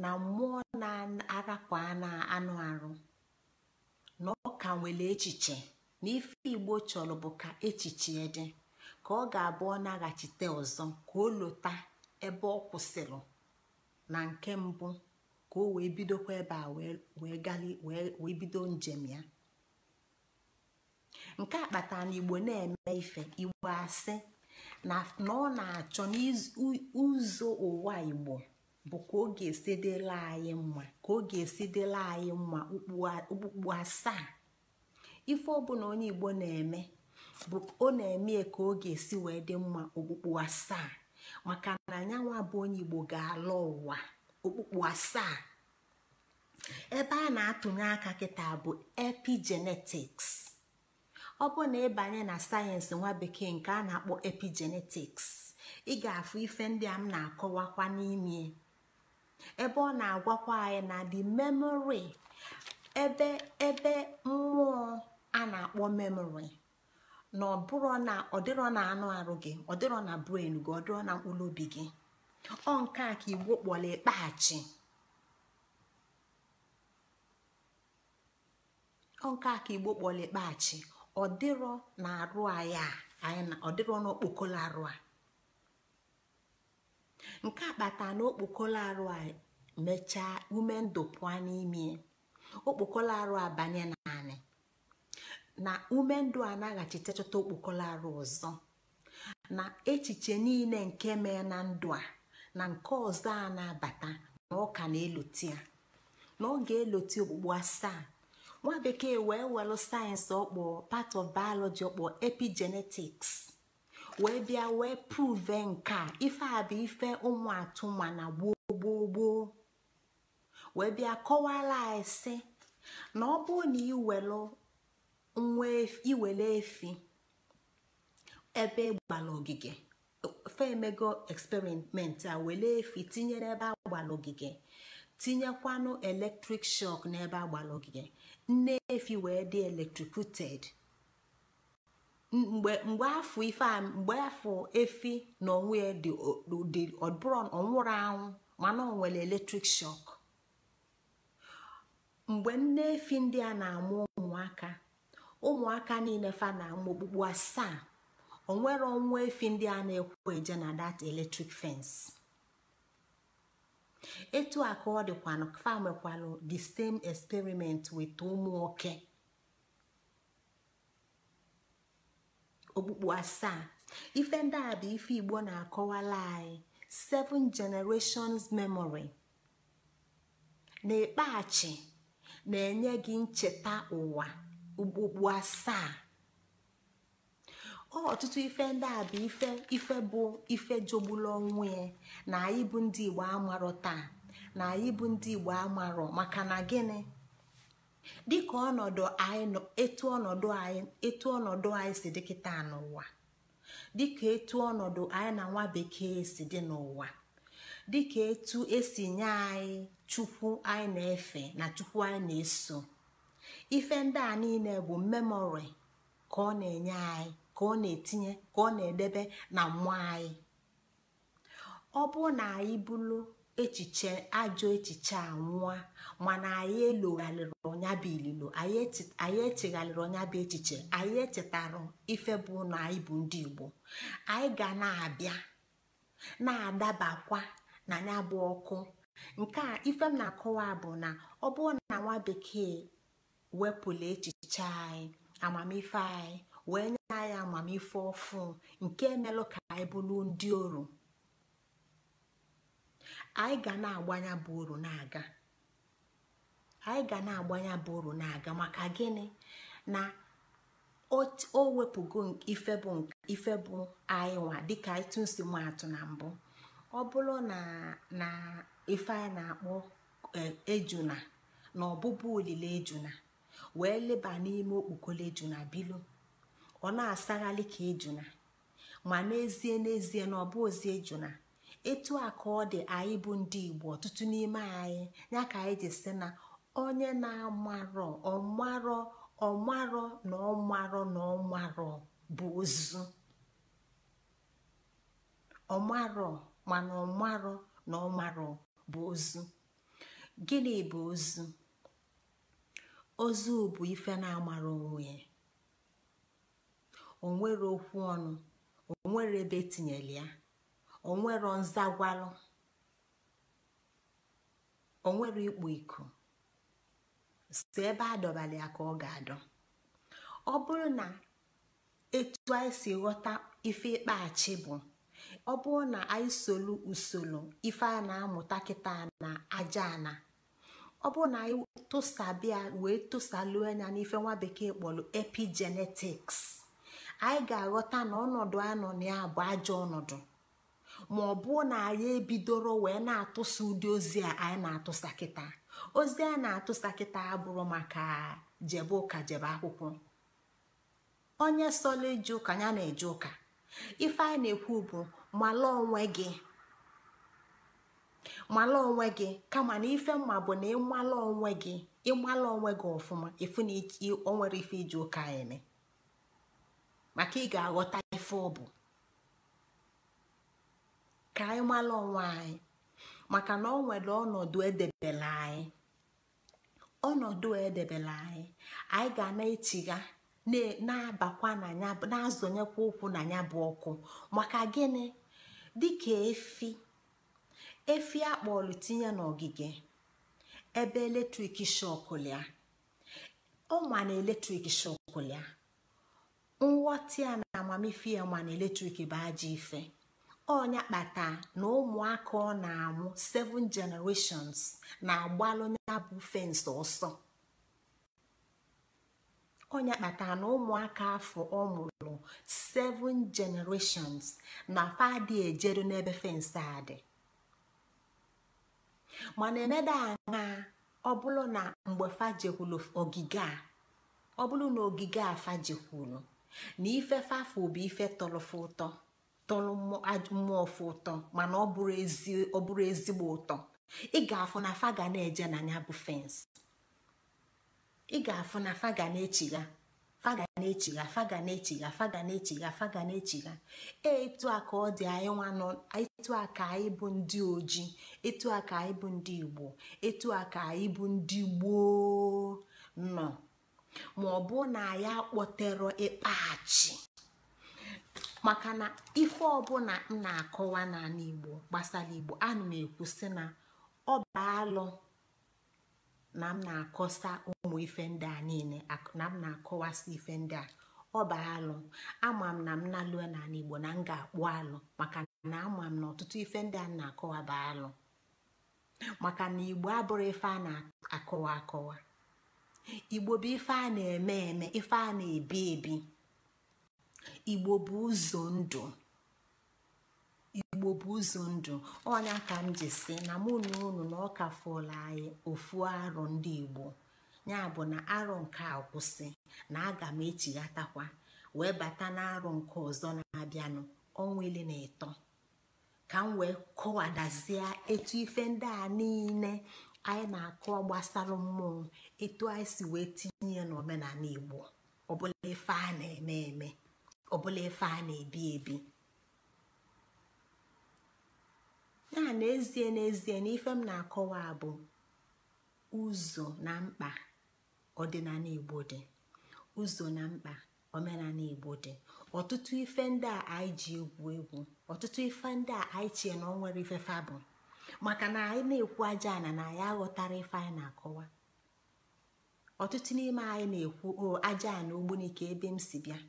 S1: na mmụọ na-arapụ anụ arụ na ọ ka nwere echiche na ife igbo chọrọ bụ ka echiche dị ka ọ ga-abụ ọ naghachite ọzọ ka o lụta ebe ọ kwụsịrị na nke mbụ ka o wee bidokwa ebe a wee bido njem ya nke a kpatara na igbo na-eme ife igbo asị na ọ na-achọ n'ụzọ ụwa igbo bụ ka ọ ga-esidela anyị mma ka ọ ga-esidela anyị mma okpukpu asaa ife ọbụla onye igbo na-eme bụ ọ na-eme ka ọ ga-esi wee dị mma okpukpu asaa maka na anyanwụ bụ onye igbo ga-ala ụwa okpukpu asaa ebe a na-atụnye aka kịta bụ epigenetics ọ bụ na ịbanye na sayensị nwa bekee nke a na-akpọ epigenetics ị ga-afụ ife ndị a m na-akọwakwa n'ime ebe ọ na-agwakwa anyị na the memory ebe ebe mmụọ a na-akpọ memori na ọ bụrụ na ọdịrọ na anụ arụ gị ọdịrọ na bren gị ọdịrọ na mkpụrụ obi gị ọ nke a ka igbo kpọrọ ịkpaghachi ọ nke a ka igbo kpọrọ ịkpaghachi ọdịrọ na arụ anyị a ọdịrọ na okpokolo arụ a nke a kpatara na okpokolo arụ a mechaa ume ndụ pụọ n'ime okpokolo arụ a banye na naanị na ume ndụ a naghachitechọta okpokolo arụ ọzọ na echiche niile nke mee na ndụ a na nke ọzọ a na-abata na ọka na-eloti ya na ọ ga-eloti okpukpu asaa nwa bekee wee welụ sayensị ọkpọ part of biology ọkpọ epigenetics wee bịa wee prove nke a ife a bụ ife ụmụ atụma na gboo gboo gboo wee bịa kọwara anyị sị na ọ bụrụ na ị welụ nwa iwere efi ebe e gbara ogige femego experiment a were efi tinyere ebe agbara ogige tinyekwanụ electric shock n'ebe agbara ogige nne efi wee dị electrocuted mgbe afọ ife mgbe afọ efi na onwe ya dị ọbụrụ ọnwụrụ anwụ mana ọ nwere electric shock mgbe nne efi ndị a na-amụ ụmụaka ụmụaka niile fa na amụ asaa asaa onwere ọnwa efi ndị a na-ekwu eje na dat eletrik fence etu a ka ọ dịkwanụ fa mekwalụ the same experiment with ụmụaka. okpukpu asaa ife ndị a bụ ife igbo na-akọwala anyị seven generations memory na-ekpeghachi na-enye gị ncheta ụwa okpukpu asaa ọ ọtụtụ ife ndị a bụ ife ife bụ ife jogbulu onwe ya na anyị bụ ndị igbo amarọ taa na anyị bụ ndị igbo amarọ maka na gịnị dịka ọnọdụ anyị etu ọnọdụ anyị etu ọnọdụ anyị si dị kịta n'ụwa dịka etu ọnọdụ anyị na nwa bekee si dị n'ụwa dịka etu esi nye anyị chukwu anyị na-efe na chukwu anyị na-eso ife ndị a niile bụ memori ka ọ na-enye anyị ka ọ na-etinye ka ọ na-edebe na mmụọ anyị ọ bụrụ na anyị bụrụ echiche ajọ echiche a nwụọ mana anyị elogharịrị ọnyabụ ililo anyị echegharịrị ọnyabụ echiche anyị echetara ife bụ na anyị bụ ndị Igbo anyị ga na-abịa na-adabakwa na ya bụ ọkụ nke a ife m na-akọwa bụ na ọ bụrụ na nwa bekee wepụla echiche anyị amamife anyị wee nye anyị amamife ọfụ nke emelụ ka anyị bụrụ ndị oru anyị ga na-agbanya bụ oru na-aga maka gịnị na o wepụgo ife bụ anyị nwa dịka ịtụ tụsi na mbụ ọ bụrụ na ife anyị na-akpọ eh, ejuna na ọbụbụ olile ejuna wee leba n'ime okpokolo juna bilo ọ na asagharị ka ejuna ma n'ezie n'ezie na ọ bụ ozi ejuna etu a ka ọ dị anyị bụ ndị igbo ọtụtụ n'ime anyị ya ka anyị ji si na onye na-amarọ ọmarọ ọmarọ na ọmarọ na ọmarọ bụ ozu ọmarọ mana ọmarọ na ọmarọ bụ ozu gịnị bụ ozu ozu bụ ife na-amara onwe ya onwere okwu ọnụ onwere ebe etinyere ya onwere nzagwalụ onwere ịkpụ iko. si ebe adọbala ya ka ọ ga-adọ ọ bụrụ na etu anyị si ghọta ife ikpeachi bụ ọ bụrụ na anyị solu usoro ife a na-amụta kịta na aja ọ bụrụ na anyị tụsabịa wee tụsalu anya n'ife nwa bekee kpọrọ epigenetics anyị ga-aghọta na ọnọdụ anọ nọ na ya bụ ajọ ọnọdụ ma ọ bụ na anyị ebidoro wee na-atụsa ụdị ozi a anyị na-atụsa kịta ozi a na-atụsa kịta abụrụ maka jebe ụka jebe akwụkwọ onye sọla eji ụka ya na-eje ụka ife anyị na-ekwu bụ mala onwe gị mala onwe gị kama na ife mma bụ na ịmala onwe gị ịmala onwe gị ọfụma efu na o nwere ife iji ụka eme maka ị ga-aghọta ife ọ bụ ka anyị mala onwe anyị maka na ọ nwere ọnọdụ edebela anyị ọnọdụ edebela anyị anyị ga na-echigha na-abakwa na ya na-azọnyekwa ụkwụ na ya bụ ọkụ maka gịnị dịka efi efi akpọlụ tinye n'ogige ebe eletrik shọkụlịa ọnwa na eletrik shọkụlịa nghọta ya na amamife ya ma na eletrik bụ ajọ ife ọnya kpata na ụmụaka ọ na-amụ seven generations na-agbalụ ya bụ fensị ọsọ ọnya kpata na ụmụaka afọ ọ mụrụ seven generations na fadị ejeru n'ebe fensị a dị mana emeda anya ọ bụrụ na mgbe fajekwulu ogige a ọ bụrụ na ogige a fajekwulu na ife fafụ bụ ife tọrọfe ụtọ tọrọ mmụọ fụ ụtọ mana ọ bụrụ ezigbo ụtọ ị ga-afụ na faga na-eje na ya bụ fensị ị ga-afụ na faga na-echigha faga na-echigha faga na faga na e, etu a ka ọ dị anyị nwa nọ etu a ka anyị bụ ndị oji etu a ka anyị bụ ndị igbo etu a ka anyị bụ ndị gboo nọ ma ọ bụ na ya kpọtero ịkpaghachi maka na ife ọbụla m na-akọwa n'ala igbo gbasara igbo ana m ekwu na ọ bụ alụ na m na-akọsa ụmụ ife ndị a niile na m na-akọwasị ife ndị a ọ bụ alụ ama m na m na n'ala Igbo na m ga-akpụ alụ maka na ama m na ọtụtụ ife ndị a na-akọwa bụ alụ maka na Igbo abụrụ ife a na-akọwa akọwa Igbo bụ ife a na-eme eme ife a na-ebi ebi Igbo bụ ụzọ ndụ igbo bụ ụzọ ndụ ọnya ka m ji si na mụ na unu na ọka ka anyị ofu arụ ndị igbo ya bụ na arụ nke a kwụsị na aga m echighatakwa wee bata na arụ nke ọzọ na-abịanụ ọnwa ile na ịtọ ka m wee kọwadazie etu ife ndị a niile anyị na-akọ gbasara mmụọ etu anyị si wee tinye ya n'omenala igbo ọbụla ife a na-eme eme ọbụla ife a na-ebi ebi ya n'ezie n'ezie na m na-akọwa bụ ụzọ na mkpa ọdịnala igbo dị ụzọ na mkpa omenala igbo dị ọtụtụ ife ndị a anyị ji egwu egwu ọtụtụ ife ndị a anyị chie na ọ nwere ife fa maka na anyị na-ekwu aja ana na anyị aghọtara ife anyị na-akọwa ọtụtụ n'ime anyị na-ekwu o aja na ogbunike ebe m si bịa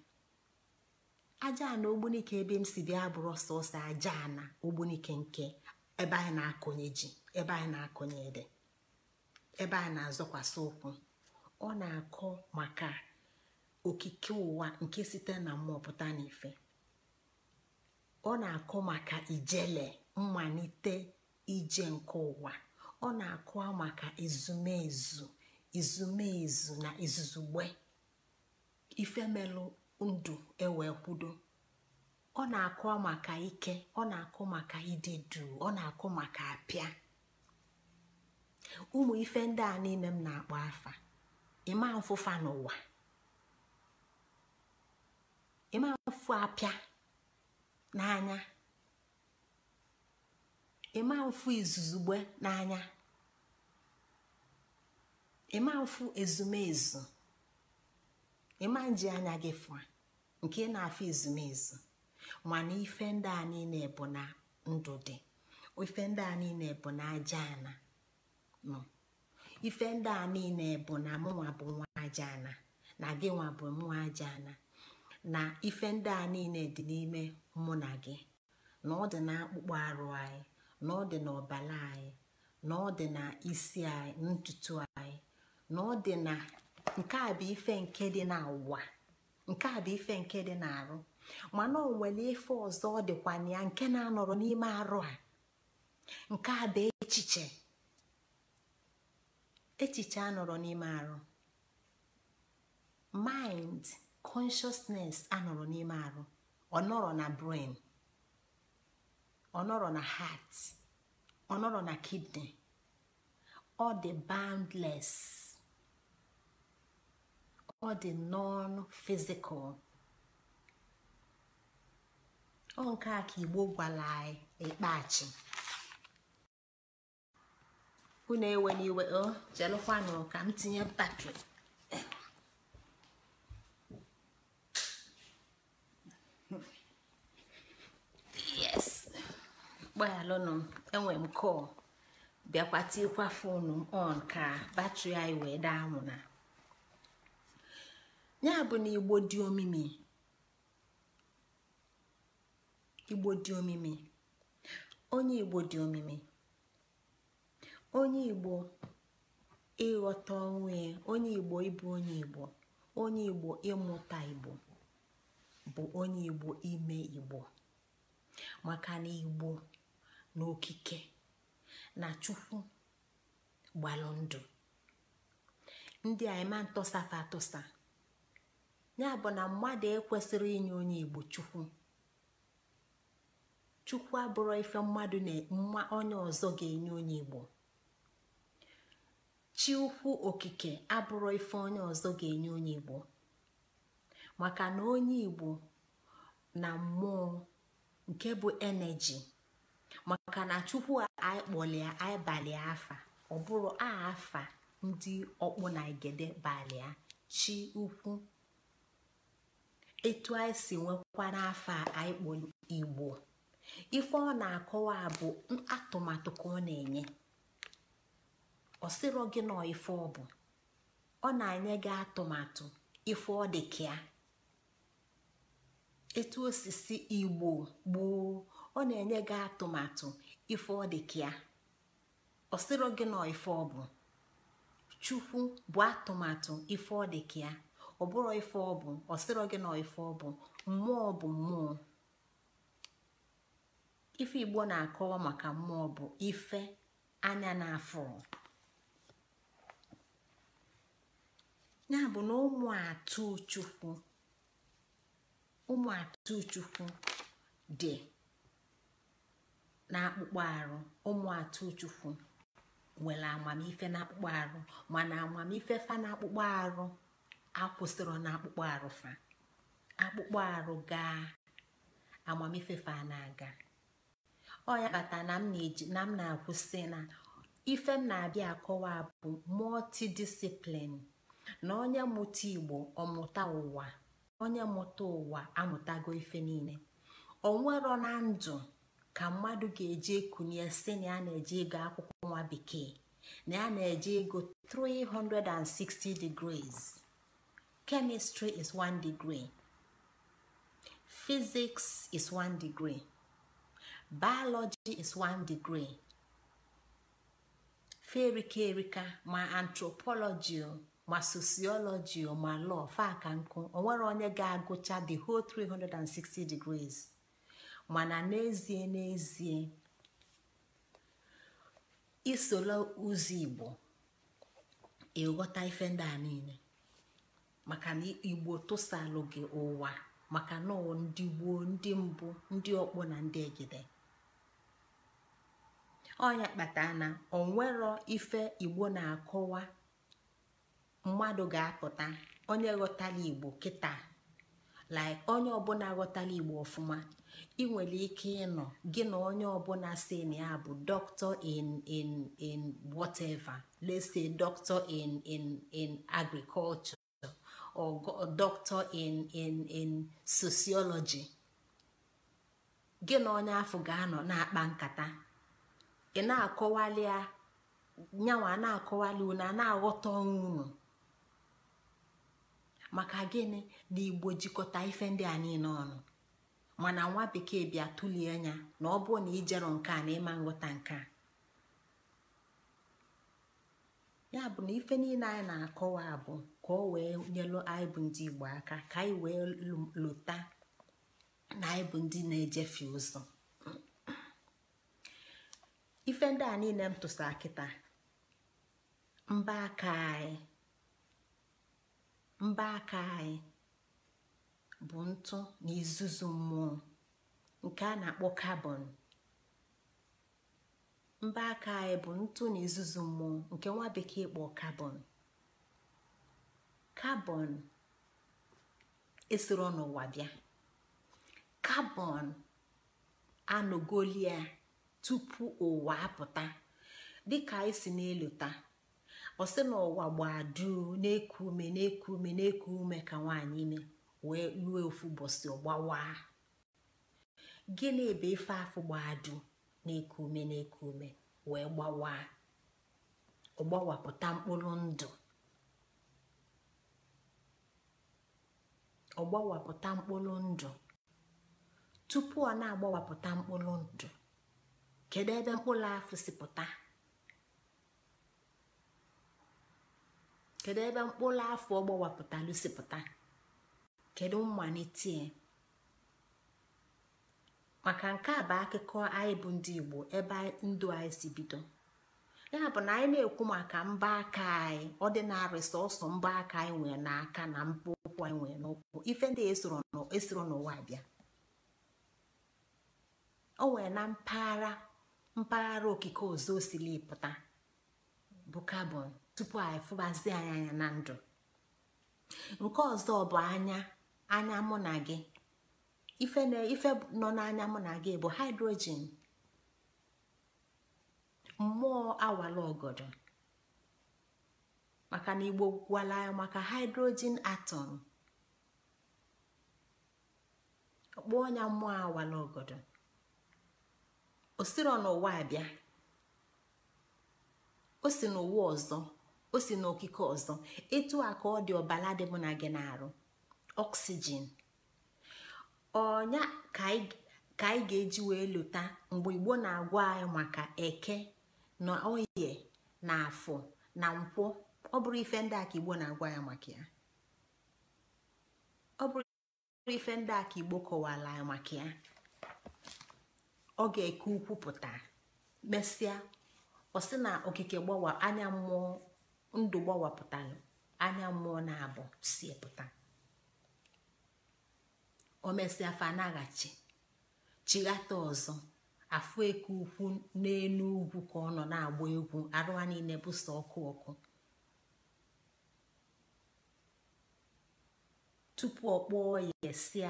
S1: aja ana ogbunike ebe m si bịa bụrụ sọsọ aja na ogbunike nke ebe anyị na akụnye ji ebe anyị na akụnye ede ebe anyị na-azọkwasị ụkwụ ọ na-akọ maka okike ụwa nke site na mmụọ pụta n'ife ọ na-akọ maka ijele mmalite ije nke ụwa ọ na-akọ maka ezumeezu, izumezu na izuzugbe ifemelụ ndụ ewee kwudo ọ na-akụ maka ike ọ na-akụ maka ịdị duu ọ na-akụ maka apịa ụmụ ife ndị a niile m na-akpọ afa ịma mfụfa n'ụwa ịma mfụ apịa n'anya ịma mfụ izuzugbe n'anya ịma mfụ ezumezu ịma nji anya gị fụa nke na-afụ ezumezu mana ife ndị a niile bụ na ndụ dị ife ndị a niile bụ na aja ana ife ndị a niile bụ na mụnwa bụ nwa aja ana na gị nwa bụ nwa aja ana na ife ndị a niile dị n'ime mụ na gị na ọ dị na akpụkpọ arụ anyị na ọ dị n'ọbala anyị na ọ dị na isi anyị ntutu anyị na ọ dị na nke a bụ ife nke dị na n'ụwa nke a bụ ife nke dị na arụ. mana o nwere ife ọzọ ọ dịkwana ya nke na-anọrọ n'ime arụ a nke a bụ echiche echiche anọrọ n'ime arụ mind consciousness anọrọ n'ime arụ ọ nọrọ na brain ọ nọrọ na heart ọ nọrọ na kidney ọ dị boundless ọ dị non-physical ọ nke a ka igbo gwara anyị n'ikpeachi unu ewe n'iwe o jelụkwanụ ka m tinye batrị yes gbaghalụnụ enwe m kọl bịakwa tikwa foonu m on ka batrị anyị wee daa anwụ na ya bụ na igbo dị omimi igbo dị onye igbo dị omimi onye igbo ịghọta onwe onye igbo ịbụ onye igbo onye igbo ịmụta igbo bụ onye igbo ime igbo maka na igbo na okike na chukwu gbalụ ndụ ndị a ịma ntọsafa atụsa ya bụ na mmadụ ekwesịrị inye onye igbo chukwu chukwu abụrọ ife mmadụ na mma onye ọzọ ga-enye onye igbo chi okike abụrụ ife onye ọzọ ga-enye onye igbo maka na onye igbo na mmụọ nke bụ eneji maka na chukwu a kpọlịa anyị afa ọ bụrụ afa ndị ọkpụ na igede balịa chi ukwu etu anyị si nwekwa n'afa a igbo ife ọ na-akọwa bụ atụmatụ ka ọ na-enye ọ sịrọ gị na ife ọ bụ ọ na-enye gị atụmatụ ife ọ dị ka ya etu osisi igbo gboo ọ na-enye gị atụmatụ ife ọ dị ka ya ọ sịrọ gị na ife ọ bụ chukwu bụ atụmatụ ife ọ dị ka ya ọ bụrụ ife ọ bụ ọ sịrọ gị na ife ọ bụ mmụọ bụ mmụọ ife igbo na-akọwa maka mmụọ bụ ife anya na ya bụ na ụmụ atụ chukwu ụmụ atụ dị n'akpụkpọ arụ ụmụ atụ chukwu nwere amamife n'akpụkpọ arụ mana amamife fa n'akpụkpọ arụ akwụsịrị n'akpụkpọ arụ fa akpụkpọ arụ gaa amamife fa na-aga ọ ya kpata na m na-akwụsị na ife m na-abịa akọwa bụ multi-discipline na onye mụta igbo ọmụta ụwa onye mụta ụwa amụtago ife niile onwero na ndụ ka mmadụ ga-eji ekunye si na ya na-eje ego akwụkwọ nwa bekee na ya na-eje ego 360 degrees chemistry is one degree physics is one degree biology is one degree ferika erika ma anthropology ma sociology ma law faka nkụ onwere onye ga-agụcha the whole 360 degrees mana n'ezie n'ezie isola ụzọ igbo ịghọta ife ndị a niile maka na igbo tụsalụ gị ụwa maka na ndị gboo ndị mbụ ndị ọkpọ na ndị egide Onye kpata na onwero ife igbo na-akọwa mmadụ ga-apụta onye ghọtara igbo kịta like onye ọbụla ghọtala igbo ọfụma ị ike ịnọ gị na onye ọbụla si na ya bụ doctor in in in whatever let's say doctor in in in agriculture or doctor in in in sociology gị na onye afọ ga-anọ na-akpa nkata ị na-akọwali ya nyanwa na-akọwali unu a na-aghọta ọnwụ unu maka gịnị na igbo jikọta ife ndị a niile ọnụ mana nwa bekee bịa tụlie anya na ọ bụrụ na ijero nke a na ịma nghọta nke a ya bụ na ife niile anyị na-akọwa bụ ka ọ wee nyelụ anyị bụ ndị igbo aka ka anyị wee lụta na anyị bụ ndị na-ejefe ụzọ ife ndị a niile m tụsa kịta mba aka anyị mba aka anyị bụ ntụ na izuzu mmụọ nke a na-akpọ kabọn mba aka anyị bụ ntụ na izuzu mmụọ nke nwa bekee kpọ kabọn kabọn esoro n'ụwa bịa kabọn anọgolia tupu ụwa apụta dịka anyị si n'elu taa, ọ sị na ụwa gbaa duu na-eku ume na-eku ume na-eku ume ka nwaanyị ime wee lue ofu ụbọchị ọgbawa gịnị bụ ife afụ gbaa duu na-eku ume na-eku ume wee gbawaa ọgbawapụta mkpụrụ ndụ ọgbawapụta mkpụrụ ndụ tupu ọ na-agbawapụta mkpụrụ ndụ kedu ebe mkpụrụ afọ si pụta kedu ebe mkpụrụ afọ ọgbawapụtalụ si pụta kedu mmalitie maka nke a bụ akụkọ anyị bụ ndị igbo ebe ndụ anyị si bido ya bụ na anyị na-ekwu maka mba aka anyị ọ dị sọsọ mba aka anyị nwere n'aka na mkpụ ụkwụ anyị nwere n'ụkwụ ife ndị esoro e n'ụwa bịa o nwere na mpaghara mpaghara okike ọzọ osili pụta bụ kabọn tupu anyị fụbazie anyị anya na ndụ nke ọzọ bụ anya anya mụ na gị ife nọ n'anya mụ na gị bụ hydrogen mmụọ awala ọgọdọ maka na igbo gwala maka hydrogen atọm kpọọ ya mmụọ awala ogodo o n'ụwa abịa o si n'ụwa ọzọ o si n'okike ọzọ etu a ka ọ dị ọbala dị mụ na gị na-arụ oxygen ọnya ka anyị ga-eji wee lụta mgbe igbo na-agwa anyị maka eke na oye na afọ na nkwụ ọ bụrụ ife ndị aka igbo na-agwa ya maka ya ọ ga-eke ukwu pụta mesịa ọ sị na okike gbawa anya mmụọ ndụ gbawapụtalụ anya mmụọ na-abụ si pụta o mesịa fa naghachi chighata ọzọ afụ eke ukwu n'elu ugwu ka ọ nọ na-agba egwu arụwa niile bụso ọkụ ọkụ tupu ọ kpọọ ya si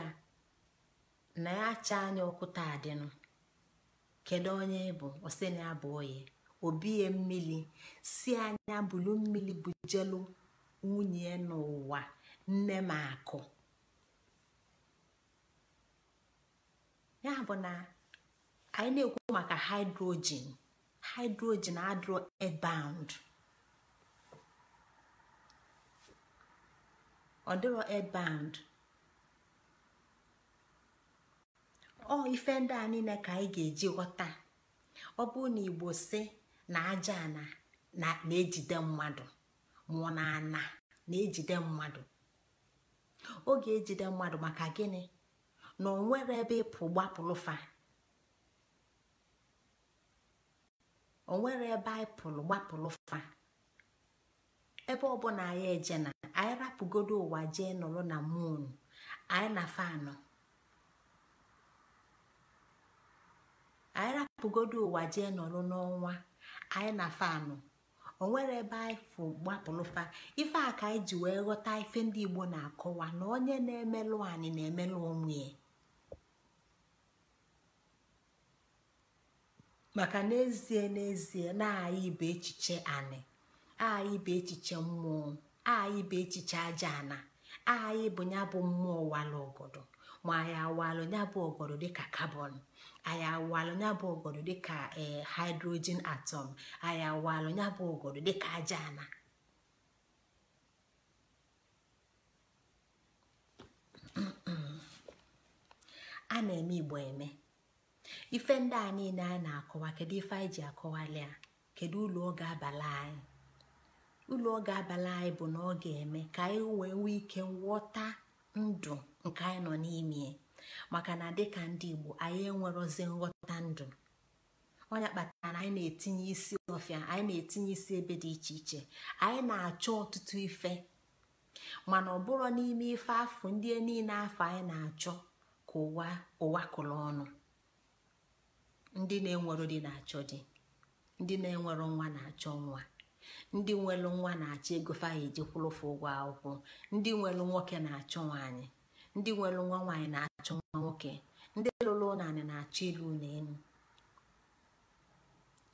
S1: na ya acha anya ọkụ taa dịnụ kedu onye bụ oseni na obie mmiri si anya bulu mmiri bujelu nwunye n'ụwa nne m akụ ya bụ na anyị na-ekwu maka hydrogen hydrogen adro airbound ọ dịrọ airbound ọ ife ndị a niile ka anyị ga-eji ghọta ọ bụrụ na igbo si na aja ana na-ejide mmadụ mụọ na ana na-ejide mmadụ oge ejide mmadụ maka gịnị na ọ nwere ebe ịpụ gbapụlụfa o ebe anyị pụrụ fa ebe ọbụla anyị eje na anyị rapụgodo ụwa jee nọrọ na moon anyị na fanụ anyị rapụgodo ụwa jee n'ọrụ n'ọnwa anyị na fanụ onwere ebe anyị fụ gbapụlụfa ife a ka anyị ji wee ghọta ife ndị igbo na-akọwa na onye na-emelụ anyị na-emelụ onwe ya maka n'ezie n'ezie na-anyị ibe echiche anyị anyị ibe echiche mmụọ anyị ibe echiche aja ana anyị bụ ya bụ mmụọ ụwalụ ọgọdọ ma anyị awalụ ya bụ ọgọdọ dịka kabọn anyị awalụ ya bụ ọgọdọ dịka ee eh, atom atọm anyị awalụ ya bụ ọgọdọ dịka aja a na-eme igbo eme ife ndị a niile a na-akọwa kedu ife anyị ji akọwali ya kedu ụlọ oge abalị anyị ụlọ ọ abalị anyị bụ na ọ ga-eme ka anyị wee nwee ike nghọta ndụ nke anyị nọ n'ime maka na dịka ndị igbo anyị enwerozi nghọta ndụ onye kpatara na anyị na-etinye isi ọfịa anyị na-etinye isi ebe dị iche iche anyị na-achọ ọtụtụ ife mana ọ bụrụ n'ime ife afọ ndị niile afọ anyị na-achọ ka ụwa ụwa kụrụ ọnụ ndị na-enwero di na-achọ di ndị na-enwero nwa na-achọ nwa ndị nwelu nwa na-achọ ego fa ya ejekwụlụfụ ụgwọ akwụkwọ ndị nwelu nwoke na achọ nwaanyị ndị nwelu nwa nwaanyị na achọ nwa nwoke ndị lụrụ naanị na-achọ ilu ụlọ elu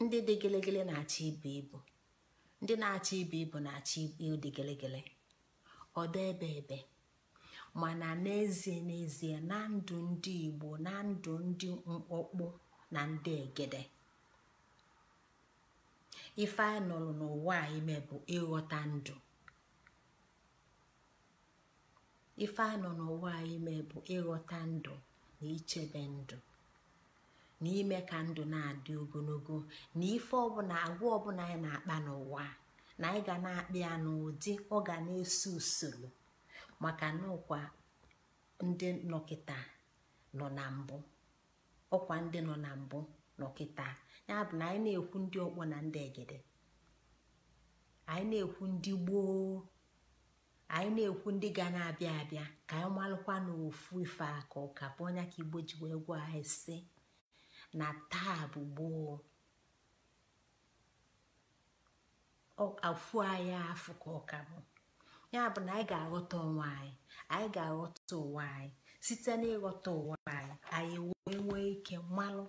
S1: ndị dị gelegele na-achọ ibu ibu ndị na-achọ ibu ibu na-achọ ibu ịdị gelegele ọdọ ebe ebe mana n'ezie n'ezie na ndụ ndị Igbo na ndụ ndị mkpọkpụ na ndị egede ife a nọrọ n'ụwa a ime bụ ịghọta ndụ anyị nọ ịghọta ndụ na ichebe ndụ na ime ka ndụ na-adị ogologo na ife ọbụla agwa ọbụla anyị na-akpa n'ụwa na anyị ga na-akpa ya n'ụdị ọ ga na-eso usoro maka na ọkwa ndị nọkịta ndị nọ na mbụ nọkịta ya bụ na anyị na-ekwu ndị ọkpọ na ndị egede anyị na-ekwu ndị gboo anyị na-ekwu ndị ga na-abịa abịa ka anyị malụkwa n'ofu ife aka ụka bụ onye ka igbo ji wee gwa anyị si na taa bụ gboo afụ anyị afụ ka ọka bụ ya bụ na anyị ga-aghọta onwe anyị anyị ga-aghọta ụwa anyị site n'ịghọta ụwa anyị anyị wee nwee ike mmalụ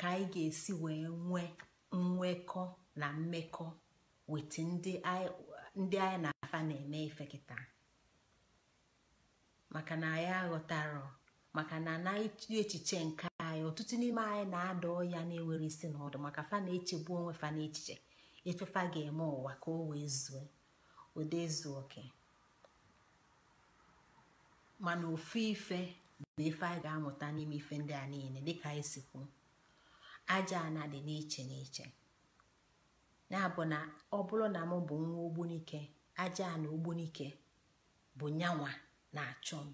S1: ka anyị ga-esi wee nwee nwekọ na mmekọ weta ndị anyị na-afa na-eme ife kịta maka na anyị aghọtara maka na anaghị echiche nke anyị ọtụtụ n'ime anyị na-ada ọya na-enwere isi na ọdụ maka fa na-echegbu onwe fa n'echiche efefa ga-eme ụwa ka o wee zuo ụdị ezu oke mana ofu ife na ife anyị ga-amụta n'ime ife ndị a niile dịka anyị e si kwuo aja ana dị n'iche n'iche na-abụ na ọ bụrụ na m bụ nwa ogbunike aja na ogbunike bụ nyanwa na-achọ m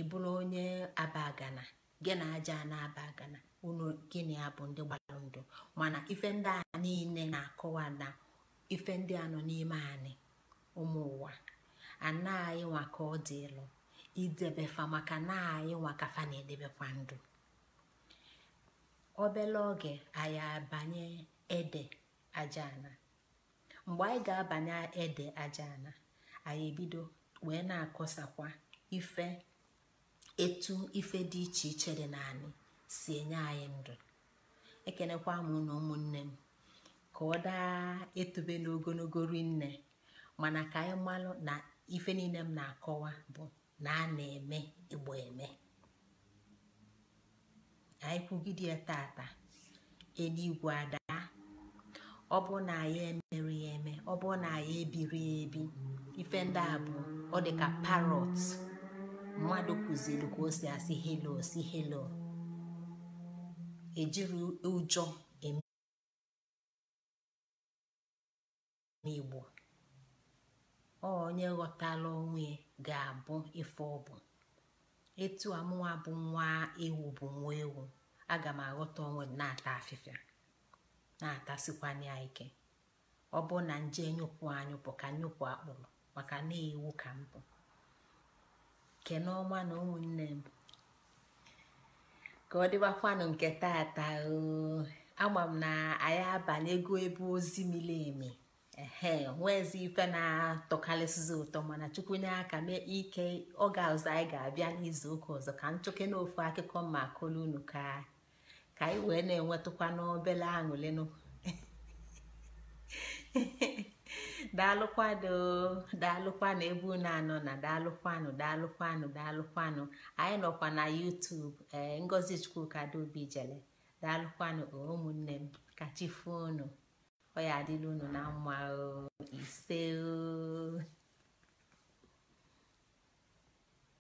S1: ị bụrụ onye abagana gị na aja na-aba unu gịnị abụ ndị gbara ndụ mana ife ndị a niile na-akọwa na ife ndị a nọ n'ime anyị ụmụ ụwa anaghị nwa ka ọ dị ịlụ Idebefa maka na anyị nwa na-edebekwa ndụ obele oge anyị abanye ede ajana mgbe anyị ga-abanye ede ana anyị ebido wee na-akọsakwa ife etu ife dị iche iche dị naanị si enye anyị ndụ ekenekwa m na ụmụnne m ka ọ daa etube n'ogologo rinne mana ka anyị malụ na ife niile m na-akọwa bụ na a na-eme igbo eme ka anyị kwugide ya tata eluigwe ada ọ bụ na anyị emere eme ọ bụ na anyị ebiri ebi ife ndị a bụ ọ dị ka parot mmadụ kụziri ka o si asị helo si helo ejiri ụjọ eme igbo onye ghọtala onwe ga-abụ ife ọbụ. etu mụnwa bụ nwa ewu bụ nwa ewu aga m aghọta onwe m na-ata afịfịa na-atasịkwanye ya ike ọ bụ na nje nyụpụ anyụpụ ka nyụpụ akpụrụ maka na ewu ka m bụ kene ọma na ụmụnne m ka ọ dịbakwanụ nke taa agba m na anyị abanye ego ebe ozi miri emi ehe nweezi ife na-atọkarịsịzi ụtọ mana chukwu nye aka mee ike oge ọzọ anyị ga-abịa n'izu ụka ọzọ ka m chụke ofu akụkọ ma kụlụ unu ka ka anyị wee na-enwetụkwa n'obele aṅụlịnụ daalụkwanụ daalụkwanụ ebe unu anọ na daalụkwanụ daalụkwanụ daalụkwanụ anyị nọkwa na YouTube ee eh, Ngozi Chukwuka Adaobi jele daalụkwanụ ụmụnne m ka chi unu ọ ya adịla unu na mma o ise o